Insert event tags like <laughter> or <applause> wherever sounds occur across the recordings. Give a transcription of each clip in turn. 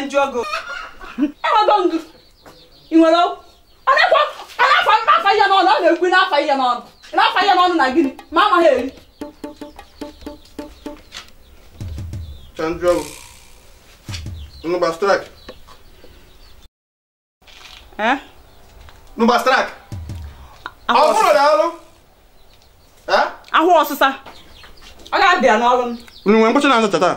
na ndị ọgụ enwego ndụ ị nwere ọnakwa anafa afa ihe n'ọnụ ọ na-ekwu n'afa ihe n'ọnụ n'afa ihe n'ọnụ na gịnị ma amaghị eri ahụ ọsịsa ọ ga-abịa n'ọrụ m nwere mkpọchi na-azụcha taa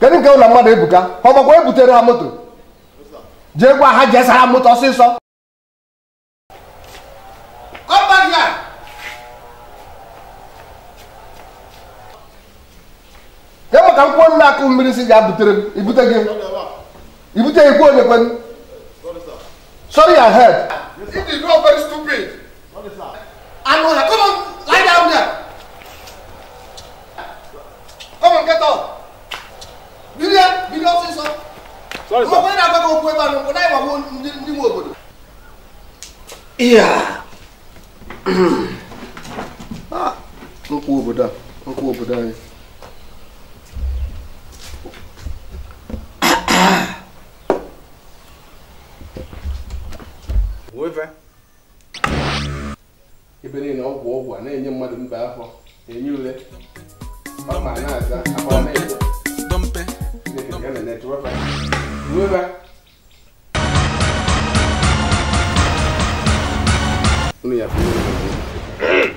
kedu nke ụlọ mmadụ ebuka ọ makwa ebutere ha moto jee gwa ha jee sara moto ọsịsọ ya maka nkwụ nna akụ mmiri si ga-abutere m ibute gị ibute ikwu onye kwen sorry your head. If you go very stupid. onye na ebe na ndị obodo nkwa obodo a obodo anyị ebe niile ọgwụ ọgwụ a na-enye mmadụ mba afọ enye ule ọ ma na-aza akwa na-ete 明白。你看，你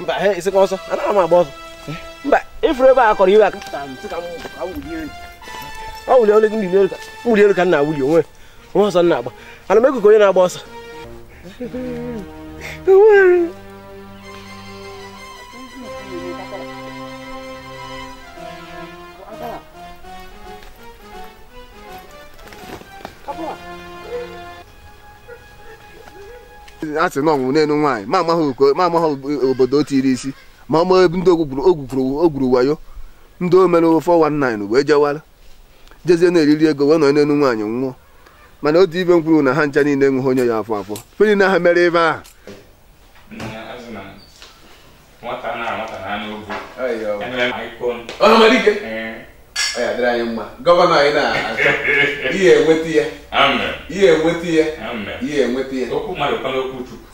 mba isi ka ọsọ anaghị m agba ọsọ mba ifuru ebe a kọrọ iwe aka ọ wuli olu ndị elu ka wuli elu ka nna wuli onwe onwe ọsọ nna agba ana m ekuku onye na-agba ọsọ Come on. a sị na ọnwụ n'elu nwaanyị ma amaghị obodo o tiri isi ma ọ maa ndị o gwuru wayo ndị o mere 419 wee jewara jezie na-eriri ego wee nọ n'elu nwaanyị nwụọ mana otu ibe m kwuru na ha ncha niile enweghị onye ya afọ afọ feri na ha mere ebe ahụ nwata na nwata na anụ ogwu ọ ya dịrị anyị mma gọvanọ anyị na-achọ <laughs> ihe enweta ya ihe enweta ya ihe enweta ya okwu mmadụ kwana okwu chukwu